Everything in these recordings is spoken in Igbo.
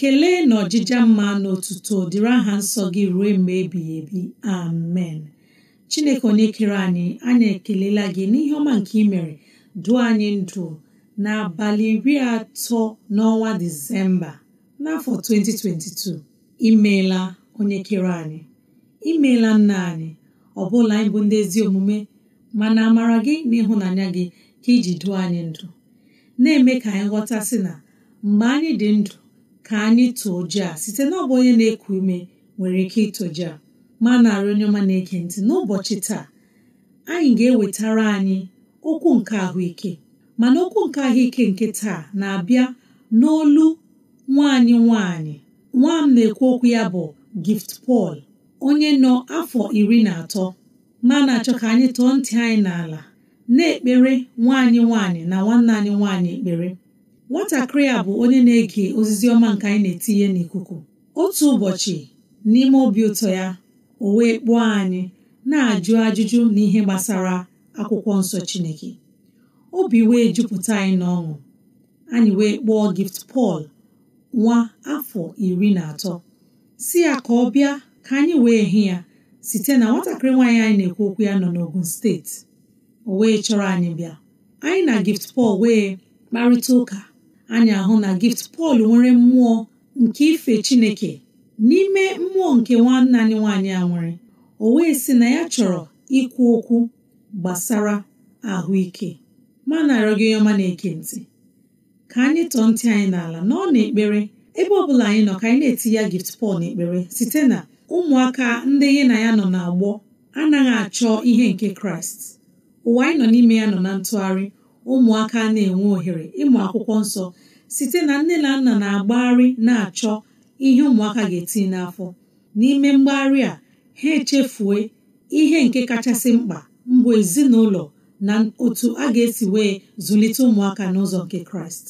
ekele na ọjịja mma na otuto dịrị aha nsọ gị ruo mgbe ebighị ebi amen chineke onye kere anyị anyị ekelela gị n'ihe ọma nke ị mere dụọ anyị ndụ n'abalị iri atọ n'ọnwa disemba n'afọ 2022 imeela onye kere anyị imeela nna anyị ọ bụla anyị bụ ndị ezi omume mana amara gị na ịhụnanya gị ka iji duo anyị ndụ na-eme ka anyị ghọta na mgbe anyị dị ndụ ka anyị tụọ ji a site na ọ bụ onye na-eku ume nwere ike itoji a ma narị onye ọma na-ege ntị n'ụbọchị taa anyị ga-ewetara anyị okwu nke ahụike mana okwu nke ahụike nke taa na-abịa n'olu nwaanyị nwaanyị nwa m na-ekwu okwu ya bụ Gift Paul onye nọ afọ iri na atọ ma na-achọ ka anyị tụọ ntị anyị n'ala na-ekpere nwaanyị nwaanyị na nwanne anyị nwaanyị ekpere nwatakịrị a bụ onye na-ege ozizi ọma nke anyị na-etinye n'ikuku otu ụbọchị n'ime obi ụtọ ya o wee kpụọ anyị na-ajụ ajụjụ n'ihe gbasara akwụkwọ nsọ Chineke obi wee jupụta anyị n'ọṅụ anyị wee kpọọ gift pọl nwa afọ iri na atọ si ya ka ọ bịa ka anyị wee hị ya site na nwatakịrị nwaanyị anyị na-ekwu okwu ya nọ n'Ogun steeti o wee chọrọ anyị bịa anyị na gift pọl wee kparịta ụka anyị ahụ na gift Pọl nwere mmụọ nke ife Chineke n'ime mmụọ nke nwanne anyị nwaanyị a nwere o wee sị na ya chọrọ ikwu okwu gbasara ahụike ma na-arịọ gị ọma na-eke ntị ka anyị tọọ ntị anyị n'ala na ọ na-ekpere ebe ọ bụla anyị nọ ka anyị na-eti ya gift Pọl na-ekpere site na ụmụaka ndị gị na ya nọ na-agbọ anaghị achọ ihe nke Kraịst ụwa anyị nọ n'ime ya nọ na ntụgharị ụmụaka na-enwe ohere ịmụ akwụkwọ nsọ site na nne na nna na-agbagharị na-achọ ihe ụmụaka ga etinye n'afọ n'ime mgbagharị a ha echefue ihe nke kachasị mkpa mbụ ezinụlọ na otu a ga-esi wee zụlite ụmụaka n'ụzọ nke kraịst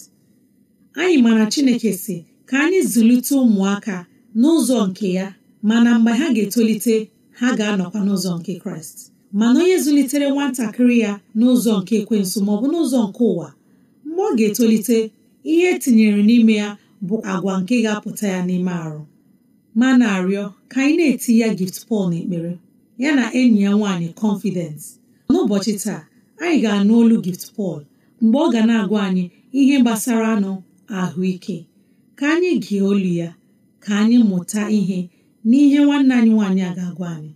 anyị mara chineke si ka anyị zụlite ụmụaka n'ụzọ nke ya mana mgbe ha ga-etolite ha ga-anọkwa n'ụzọ nke kraịst mana onye zụlitere nwatakịrị ya n'ụzọ nke ekwensu maọbụ n'ụzọ nke ụwa mgbe ọ ga-etolite ihe etinyere n'ime ya bụ agwa nke ga-apụta ya n'ime arụ ma na-arịọ ka anyị na-eti ya gift Paul n'ekpere ya na enyi ya nwaanyị confidence n'ụbọchị taa anyị ga-anụ olu gift Paul mgbe ọ ga na-agwa anyị ihe gbasara anụ ahụike ka anyị gee olu ya ka anyị mụta ihe n'ihe nwanne anyị nwaanyị a ga-agwa anyị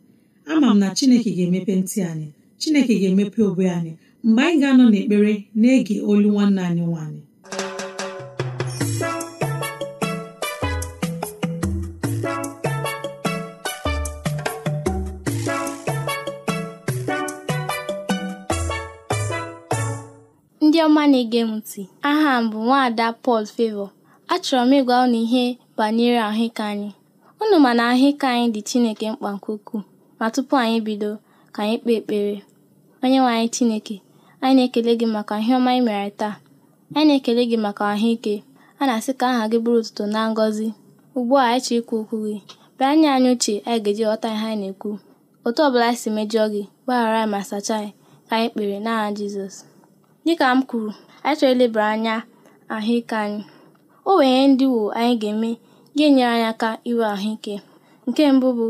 ama m na chineke ga-emepe ntị anyị chineke ga-emepe obe anyị mgbe anyị ga-anọ n'ekpere na-ege olu nwanne anyị nwanyị ndị ọma na-ege m ntị aha m bụ nwaada Paul Favor achọrọ m ịgwa unu ihe banyere ahụike anyị unu ma na ahụike anyị dị Chineke mkpa nke ukwuu Ma tupu anyị bido, ka anyị kpee ekpere. onye nwe anyị Chineke, anyị na-ekele gị maka ihe ọma anyị mere taa. Anyị na-ekele gị maka ahụike. A na-asị ka aha gị bụrụ ụtụtụ na ngọzi. Ugbu a anyị chọrọ ikwu okwu gị. Bịa nye anyị uche anyị ga-eji ghọta ihe anyị na-ekwu. Otu ọ anyị si mejọọ gị, gbaghara anyị ma sachaa anyị, ka anyị kpere n'aha Jizọs. Dịka m kwuru, anyị chọrọ ilebara anya ahụike anyị. O nwere ndị wo anyị ga-eme ga-enyere anyị aka iwe ahụike. Nke mbụ bụ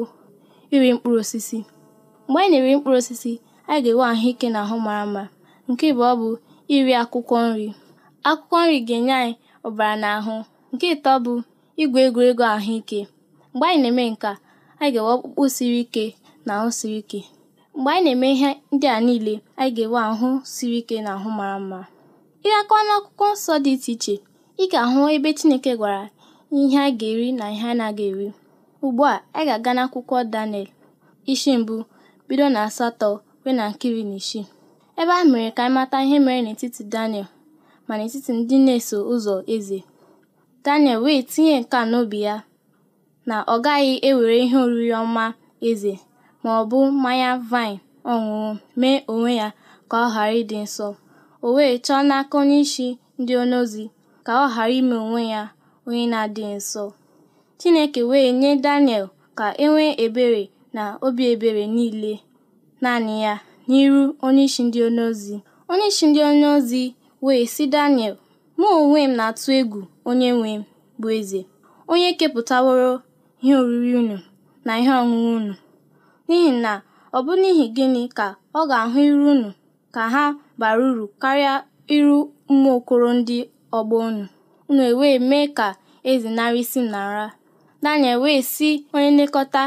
Iri mkpụrụ osisi: Mgbe anyị na-eri mkpụrụ osisi, anyị ga-enwe ahụike na ahụ mara mma. Nke ọ bụ iri akwụkwọ nri. Akwụkwọ nri ga-enye anyị ọbara ahụ. Nke ịtọ bụ igwe egwuregwu ahụike. Mgbe anyị na-eme nke a, anyị ga-enwe ọkpụkpụ siri ike na ahụ siri ike. Mgbe anyị na-eme ihe ndị a niile, anyị ga-enwe ahụ siri ike na ahụ mara mma. Ị gakwa akwụkwọ nsọ dị iche iche, ị ga-ahụ ebe Chineke gwara ihe anyị ga-eri na ihe na anaghị eri. Ugbu a ị ga-aga n'akwụkwọ Daniel isi mbụ bido na asatọ ruo na nkiri na isii, ebe a mere ka anyị mata ihe mere n'etiti Daniel ma n'etiti ndị na-eso ụzọ eze. Daniel wee tinye nka na n'obi ya na ọ gaghị ewere ihe oriri ọma eze ma ọ bụ mmanya vine ọṅụṅụ mee onwe ya ka ọ ghara ịdị nsọ. O wee chọọ n'aka onye isi ndị ozi ka ọ ghara ime onwe ya onye na-adịghị nsọ. Chineke wee nye Daniel ka e nwee ebere na obi ebere niile naanị ya n'iru onyeisi ndị onyeozi. Onyeisi ndị onyeozi wee sị Daniel, mụ onwe m na-atụ egwu onye nwe m bụ eze, onye kepụtaworo ihe oriri unu na ihe ọṅụṅụ unu, n'ihi na ọ bụ n'ihi gịnị ka ọ ga-ahụ iru unu ka ha bara uru karịa iru okoro ndị ọgbọ unu, unu ewee mee ka eze nara isi nara? Daniel wee sị onye nlekọta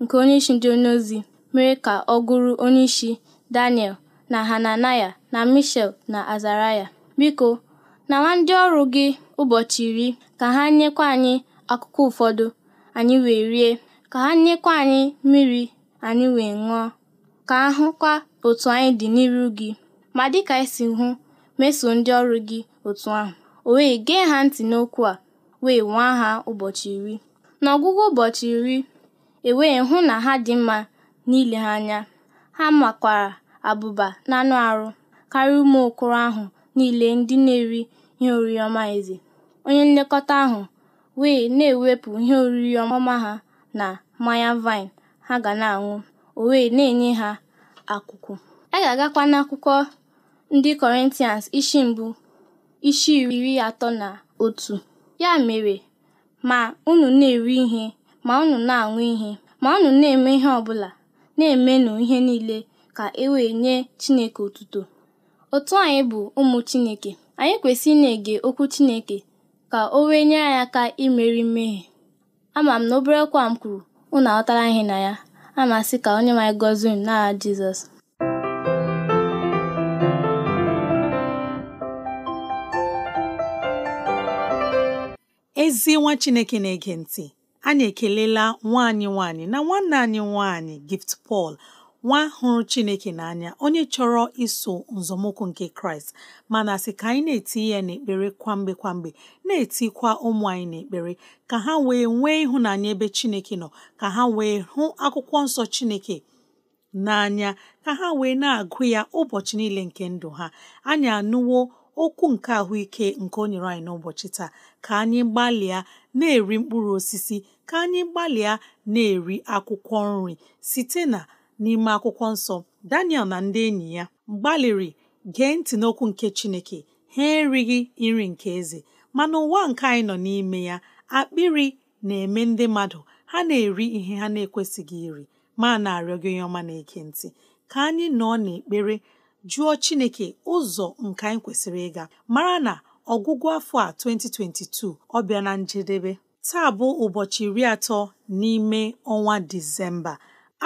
nke onye isi ndị onyeozi mere ka ọ gụrụ onye isi Daniel na Hananaya na michel na Azaraya, “Biko, na nwa ndị ọrụ gị ụbọchị iri ka ha nyekwa anyị akụkụ ụfọdụ anyị wee rie, ka ha nyekwa anyị mmiri anyị wee ṅụọ, ka ahụkwa otu anyị dị n'iru gị, ma dịka i e si hụ, mesoo ndị ọrụ gị otu ahụ.” O wee gee ha ntị n'okwu a, wee nwee ha ụbọchị iri. N'ọgwụgwụ ụbọchị iri, ewee hụ na ha dị mma n'ile ha anya, ha makwara abụba na anụ arụ karịa ụmụ okoro ahụ niile ndị na-eri ihe oriri ọma eze. Onye nlekọta ahụ wee na-ewepụ ihe oriri ọma ha na mmanya vine ha ga na-aṅụ, o wee na-enye ha akụkụ. A ga-agakwa n'akwụkwọ ndị Kọrịntịans isi mbụ isi iri atọ na otu. Ya mere ma unu na-eri ihe ma unu na-aṅụ ihe ma unu na-eme ihe ọbụla na-emenụ ihe niile ka e wee nye Chineke otuto. Otu anyị bụ ụmụ Chineke, anyị kwesịrị ị na-ege okwu Chineke ka o wee nyere anyị aka imeri mmehie. Ama m na obere kwa m kwuru, unu aghọtara ihe na ya. amasị ka onye anyị gọzie n'aha Jizọs. ezi nwa chineke na-ege ntị anyị ekelela nwanyị nwaanyị na nwanne anyị nwanyị, gift Paul nwa hụrụ chineke n'anya onye chọrọ iso nzọmụkwụ nke kraịst mana sị ka anyị na-eti ya n'ekpere kwamgbe kwamgbe na-etikwa ụmụ anyị n'ekpere ka ha wee nwee ịhụnanya ebe chineke nọ ka ha wee hụ akwụkwọ nsọ chineke n'anya ka ha wee na-agụ ya ụbọchị niile nke ndụ ha anyị anụwo okwu nke ahụike nke o nyere anyị n'ụbọchị taa ka anyị gbalịa na-eri mkpụrụ osisi ka anyị gbalịa na-eri akwụkwọ nri site na n'ime akwụkwọ nsọ Daniel na ndị enyi ya gbalịrị gee ntị n'okwu nke Chineke ha erighị nri nke eze mana ụwa nke anyị nọ n'ime ya akpịrị na-eme ndị mmadụ ha na-eri ihe ha na-ekwesịghị iri ma na-arịọ gị onye ọma na eke ntị ka anyị nọ n'ekpere jụọ chineke ụzọ nke anyị kwesịrị ịga mara na ọgwụgwụ afọ a 2022 ọ bịa na njedebe taa bụ ụbọchị iri atọ n'ime ọnwa disemba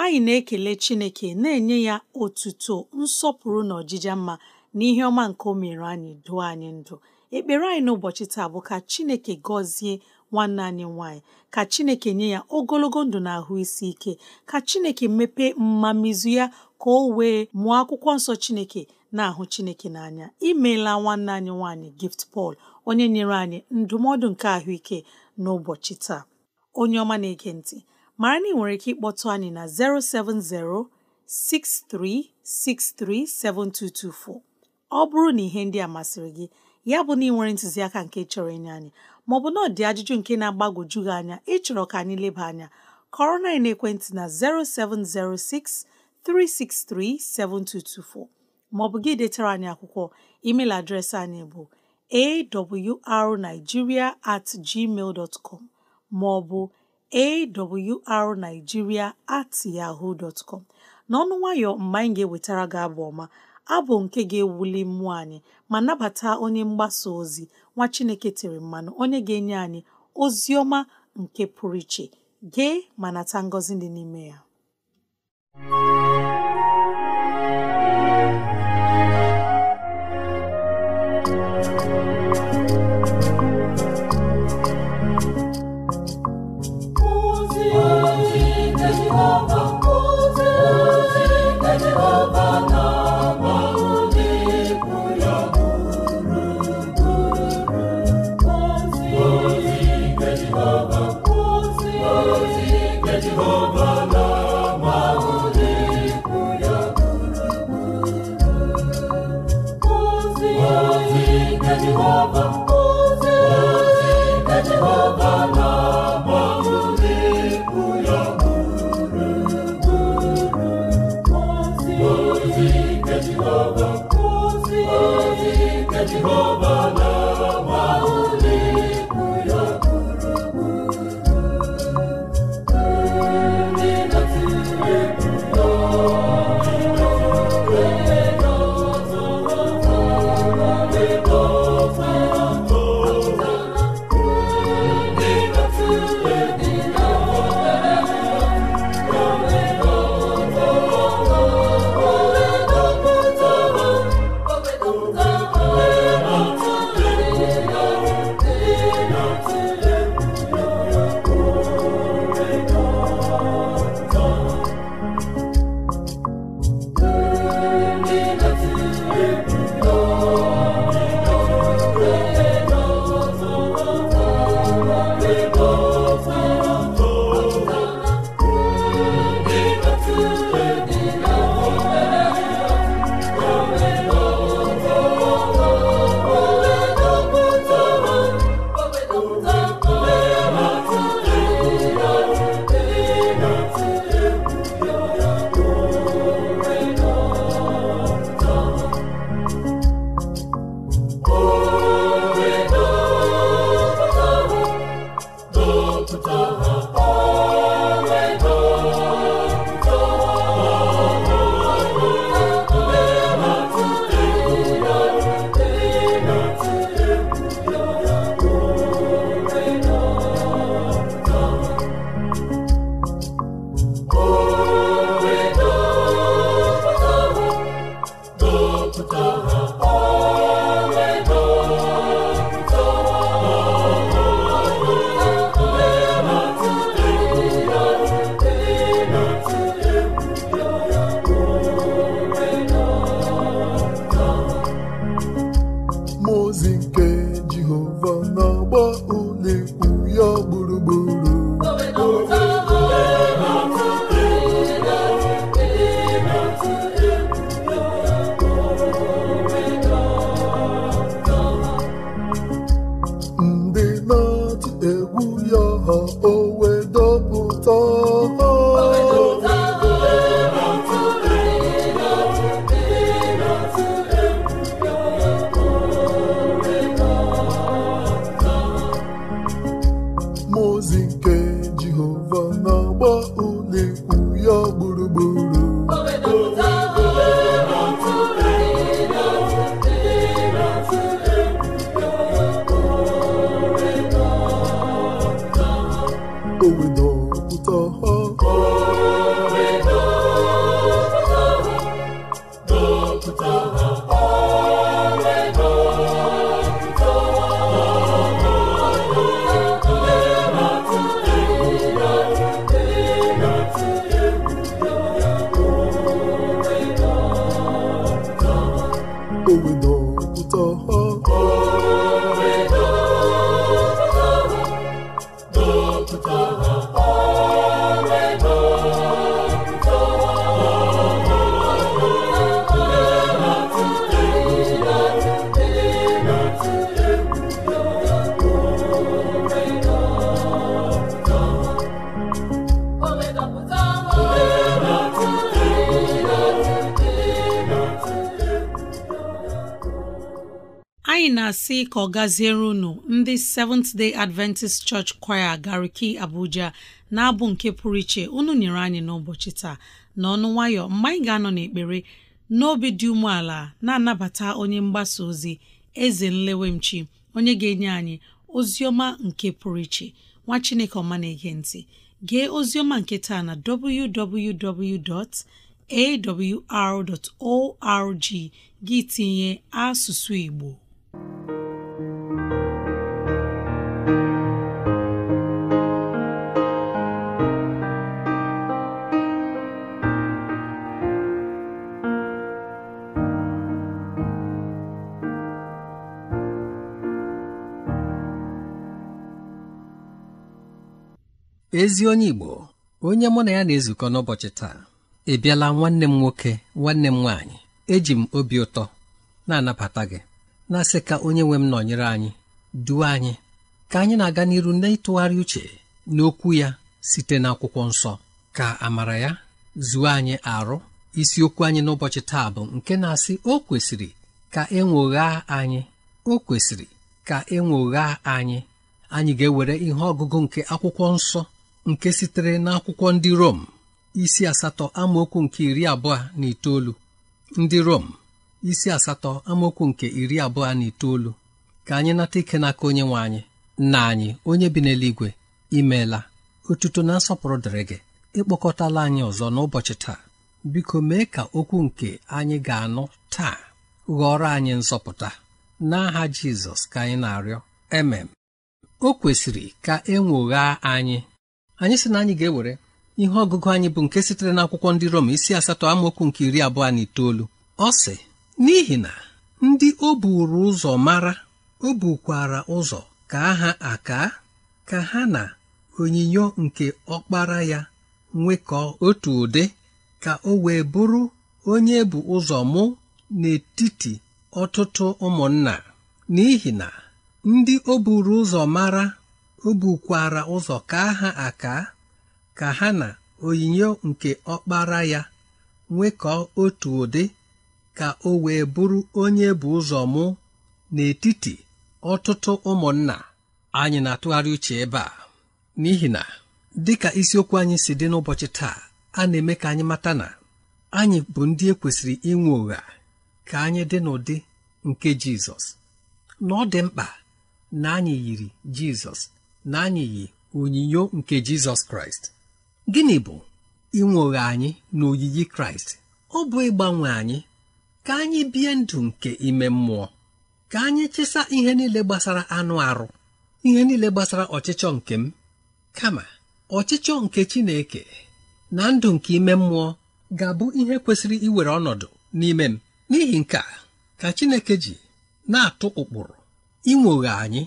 anyị na-ekele chineke na-enye ya otuto nsọpụrụ na ọjija mma na ihe ọma nke o mere anyị duo anyị ndụ ekpere anyị n'ụbọchị taa bụ ka chineke gọzie nwanne anyị nwanyị ka chineke nye ya ogologo ndụ na ahụ isi ike ka chineke mepee mmamizu ya ka o wee mụọ akwụkwọ nsọ Chineke na-ahụ Chineke n'anya imeela nwanne anyị nwaanyị Gift Paul onye nyere anyị ndụmọdụ nke ahụike n'ụbọchị taa onye ọma na-ege ntị mara na ị nwere ike ịkpọtụ anyị na 070 ọ bụrụ na ihe ndị a masịrị gị ya bụ na ị nwere ntụziaka nke chọrọ ịnye anyị maọbụ na ọ dị ajụjụ nke na-agbagwoju anya ịchọrọ ka anyị leba anya kọrọ na ekwentị na 0706 3637224 maọbụ gị detara anyị akwụkwọ email adreesị anyị bụ awrnigeria at gmail dot com maọbụ awrnigeria at yahoo dot com n'ọnụ nwayọ mgbe anyị ga-ewetara gị abụ ọma abụ nke ga-ewuli mmụọ anyị ma nabata onye mgbasa ozi nwa Chineke tiri mmanụ onye ga-enye anyị ozi ọma nke pụrụ iche gee ma nata ngọzi dị n'ime ya ọ na-asị ka ọ gaziere unu ndị Seventh Day Adventist Church Choir Gariki Abuja na-abụ nke pụrụ iche unu nyere anyị n'ụbọchị taa na ọnụ nwayọ mgbe anyị ga-anọ n'ekpere n'obi dị umeala na-anabata onye mgbasa ozi eze nlewemchi onye ga-enye anyị ozioma nke pụrụ iche nwa Chineke ọma na-ege gee ozioma nke taa na www.awr.org gị tinye asụsụ Igbo ezi onye Igbo onye mụ na ya na-ezukọ n'ụbọchị taa ị bịala nwanne m nwoke nwanne m nwaanyị eji m obi ụtọ na-anabata gị na-asị ka onye nwe m nọnyere anyị duo anyị ka anyị na-aga n'iru n'ịtụgharị uche n'okwu ya site n'akwụkwọ nsọ ka amara ya zuo anyị arụ isiokwu anyị n'ụbọchị taa bụ nke na-asị o kwesịrị ka e anyị o kwesịrị ka e anyị anyị ga-ewere ihe ọgụgụ nke akwụkwọ nsọ nke sitere n'akwụkwọ ndị Rom isi asatọ amaokwu nke iri abụọ na itoolu ndị Rom isi asatọ amaokwu nke iri abụọ na itoolu ka anyị nata ike n'aka onye nwe anyị na anyị onye bi n'eluigwe imeela otuto na nsọpụrụ dịrị gị ịkpọkọtala anyị ọzọ n'ụbọchị taa biko mee ka okwu nke anyị ga-anụ taa ghọrọ anyị nzọpụta n'aha Jizọs ka anyị na-arịọ emem o kwesịrị ka e anyị anyị sị na anyị ga-ewere ihe ọgụgụ anyị bụ nke sitere n'akwụkwọ ndị Rom isi asatọ amaokwu nke iri abụọ na itoolu ọ sị n'ihi na ndị o buru ụzọ mara o bukwara ụzọ ka ha aka ka ha na onyinyo nke ọkpara ya nwekọọ otu ụdị ka o wee bụrụ onye bụ ụzọ mụ n'etiti ọtụtụ ụmụnna n'ihi na ndị o buru ụzọ mara o bukwara ụzọ kaa ha aka ka ha na onyinyo nke ọkpara ya nwekọọ otu ụdị ka o wee bụrụ onye bụ ụzọ mụ n'etiti ọtụtụ ụmụnna anyị na-atụgharị uche ebe a n'ihi na dị dịka isiokwu anyị si dị n'ụbọchị taa a na-eme ka anyị mata na anyị bụ ndị ekwesịrị inwe ụgha ka anyị dị n'ụdị nke Jizọs na ọ dị na anyị yiri Jizọs na yi onyinyo nke Jizọs Kraịst gịnị bụ inwoghe anyị na oyiyi Kraịst ọ bụ ịgbanwe anyị ka anyị bie ndụ nke ime mmụọ ka anyị chesa ihe niile gbasara anụ arụ ihe niile gbasara ọchịchọ nke m kama ọchịchọ nke Chineke na ndụ nke ime mmụọ ga-abụ ihe kwesịrị iwere ọnọdụ n'ime m n'ihi nke ka Chineke ji na-atụ ụkpụrụ inwoghe anyị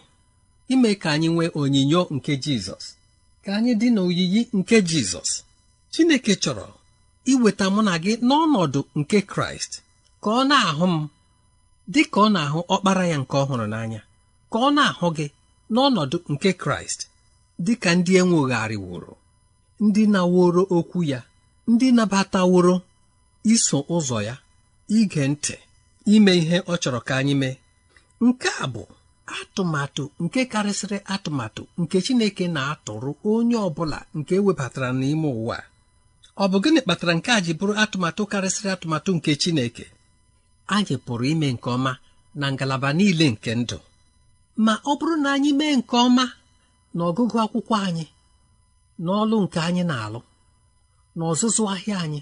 ime ka anyị nwee onyinyo nke jizọs ka anyị dị n'oyiyi nke jizọs chineke chọrọ iweta mụ na gị n'ọnọdụ nke kraịst ka ọ na-ahụ m dị ka ọ na-ahụ ọkpara ya nke ọhụrụ n'anya ka ọ na-ahụ gị n'ọnọdụ nke kraịst dị ka ndị enwegharịwụrụ ndị na-woro okwu ya ndị nabataworo iso ụzọ ya ige ntị ime ihe ọ chọrọ ka anyị mee nke a bụ atụmatụ nke karịsịrị atụmatụ nke Chineke na-atụrụ onye ọ bụla nke webatara n'ime ụwa ọ bụ gịnị kpatara nke a ji bụrụ atụmatụ karịsịrị atụmatụ nke Chineke anyị pụrụ ime nke ọma na ngalaba niile nke ndụ ma ọ bụrụ na anyị mee nke ọma na ọgụgụ akwụkwọ anyị n'ọlụ nke anyị na-alụ na ọzụzụ ahịa anyị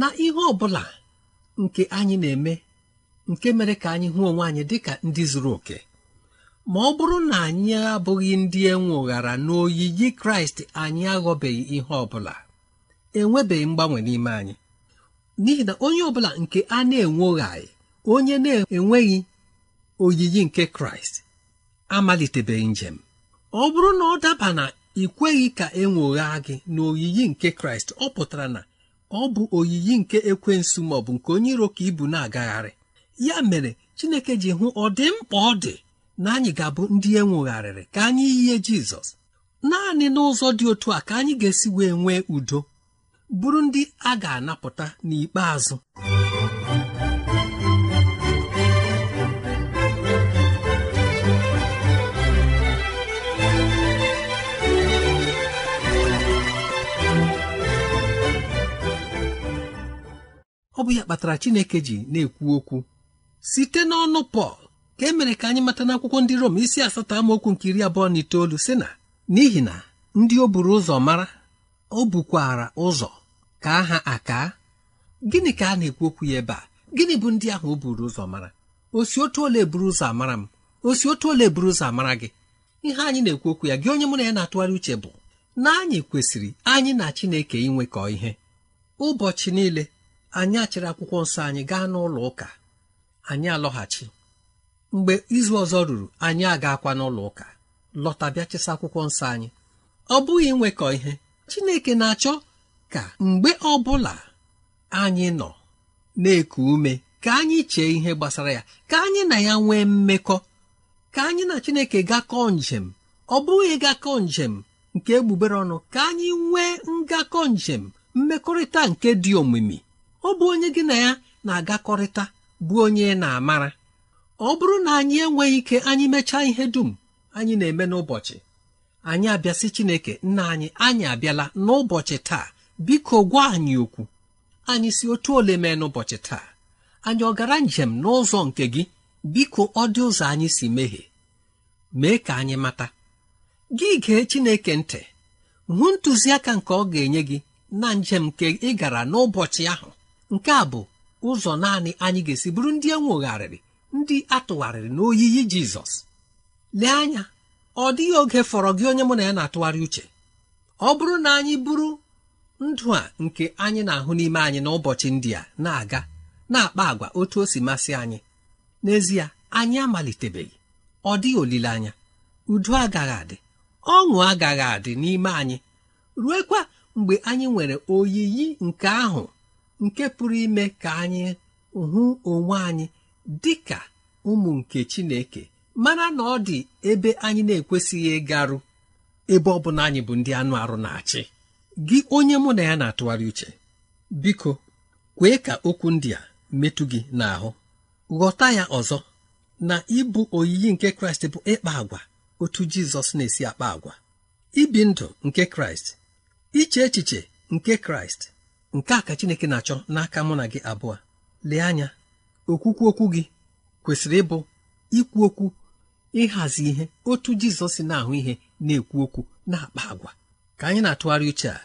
na ihe ọ bụla nke anyị na-eme nke mere ka anyị hụ onwe anyị dị ka ndị zuru oke ma ọ bụrụ na anyị abụghị ndị enweghara n'oyiyi kraịst anyị aghọbeghị ihe ọ bụla enwebeghị mgbanwe n'ime anyị n'ihi na onye ọ bụla nke a na anyị onye na-enweghị oyiyi nke kraịst amalitebeghị njem ọ bụrụ na ọ daba na ị kweghị ka enwogha gị na oyiyi nke kraịst ọ pụtara na ọ bụ oyiyi nke ekwensu maọbụ nke onye iro ka ibu na-agagharị ya mere chineke ji hụ ọ dị mkpa ọ dị na anyị ga-abụ ndị e ka anyị yie jizọs naanị n'ụzọ dị otu a ka anyị ga-esi wee nwee udo bụrụ ndị a ga-anapụta n'ikpeazụ ọ bụ ya kpatara Chineke ji na-ekwu okwu site n'ọnụ Pọl ka e mere ka anyị mata n'akwụkwọ ndị Rom isi asatọ amaokwu nke iri abụọ na itoolu sị na n'ihi na ndị o buru ụzọ mara o bukwara ụzọ ka aha aka gịnị ka a na-ekwu okwu ya ebe a gịnị bụ ndị ahụ o buru ụzọ mara osi otu ole buru ụzọ amara m osi otu ole buru ụzọ amara gị ihe anyị na-ekwu okwu ya gị onye mụ na ya na-atụgharị uche bụ na anyị kwesịrị anyị na Chineke inwekọ ihe ụbọchị niile anyị achịrị akwụkwọ nsọ anyị gaa n'ụlọ ụka anyị alọghachi mgbe izu ọzọ ruru anyị agakwa n'ụlọ ụka lọta bịa chesa akwụkwọ nsọ anyị ọ bụghị nwekọ ihe Chineke na-achọ ka mgbe ọ bụla anyị nọ na-eku ume ka anyị chee ihe gbasara ya ka anyị na ya nwee mmekọ ka anyị na Chineke gakọ njem ọ bụghị gakọ njem nke egbugbere ọnụ ka anyị nwee ngakọ njem mmekọrịta nke dị omimi ọ bụ onye gị na ya na-agakọrịta bụ onye na-amara ọ bụrụ na anyị enweghị ike anyị mechaa ihe dum anyị na-eme n'ụbọchị anyị abịasị Chineke nna anyị anyị abịala n'ụbọchị taa biko gwa anyị okwu anyị si otu ole mee n'ụbọchị taa anyị ọ gara njem n'ụzọ nke gị biko ọ dị ụzọ anyị si mehie mee ka anyị mata gị gee Chineke ntị hụ ntụziaka nke ọ ga-enye gị na njem nke ị gara n'ụbọchị ahụ nke a bụ ụzọ naanị anyị ga-esi bụrụ ndị enwogharịrị ndị atụgharịrị n'oyiyi jizọs lee anya ọ dịghị oge fọrọ gị onye mụ na ya na-atụgharị uche ọ bụrụ na anyị bụrụ ndụ a nke anyị na-ahụ n'ime anyị n'ụbọchị ndị a na-aga na-akpa agwa otu o si masị anyị n'ezie anyị amalitebeghị ọ dịghị olileanya udo agaghị adị ọṅụ agaghị adị n'ime anyị ruekwa mgbe anyị nwere oyiyi nke ahụ nke pụrụ ime ka anyị hụ onwe anyị dị ka ụmụ nke chineke mara na ọ dị ebe anyị na-ekwesịghị ịgarụ ebe ọ bụla anyị bụ ndị anụ arụ na-achị gị onye mụ na ya na-atụgharị uche biko kwee ka okwu ndị a metụ gị n'ahụ ghọta ya ọzọ na ịbụ oyiyi nke kraịst bụ ịkpa agwa otu jizọs na-esi akpa agwa ibi ndụ nke kraịst iche echiche nke kraịst nke a ka chineke na-achọ n'aka mụ na gị abụọ lee anya okwukwu okwu gị kwesịrị ịbụ ikwu okwu ịhazi ihe otu jizọs si na-ahụ ihe na-ekwu okwu na-akpa agwa ka anyị na-atụgharị uche a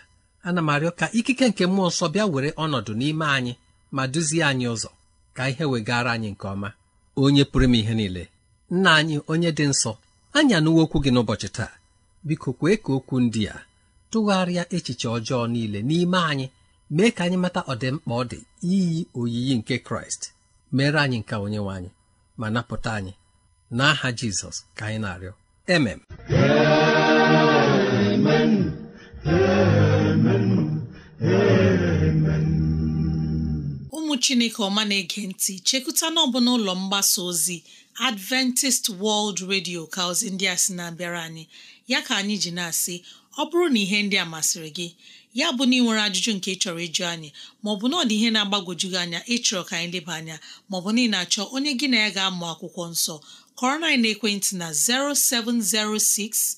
ana m arịọ ka ikike nke mmụọ nsọ bịa were ọnọdụ n'ime anyị ma duzie anyị ụzọ ka ihe wegara anyị nke ọma onye pụrụ m ihe niile nna anyị onye dị nsọ anya anụwo okwu gị n'ụbọchị taa biko kwee ka okwu ndị a tụgharịa echiche ọjọọ niile n'ime anyị mee ka anyị mata ọdịmkpa ọ dị iyi oyiyi nke kraịst mere anyị nke onye nwe anyị ma napụta anyị n'aha jizọs ka anyị na-arịọ emem ụmụ chineke ọma na-ege ntị chekụta n'ọbụ n'ụlọ mgbasa ozi adventist world radio ka ozi ndị a sị na-abịara anyị ya ka anyị ji na-asị ọ bụrụ na ihe ndị a masịrị gị ya bụ na ị nwere ajụjụ nke ị chọrọ ịjụ anyị maọbụ na ọ dị ihe na-agbagwoju gị anya ịchọrọ ka anyị leba anya maọbụ na ị na-achọ onye gị na ya ga-amụ akwụkwọ nsọ kọrọ na ekwentị na 0706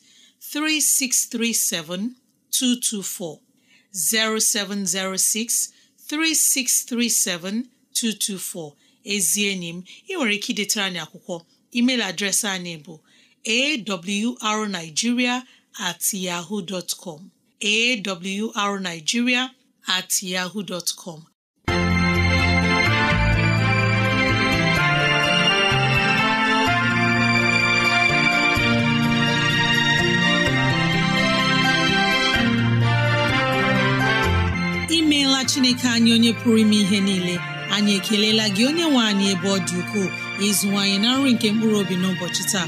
224, 0706 ezi enyi m ị nwere ike idetara anyị akwụkwọ email adreesị anyị bụ awrnigeria at yahoo dot awrnigeria at yahoo dot com imeela chineke anyị onye pụrụ ime ihe niile anyị ekelela gị onye nwe anyị ebe ọ dị ukwuu ịzụwanyị na nri nke mkpụrụ obi n'ụbọchị taa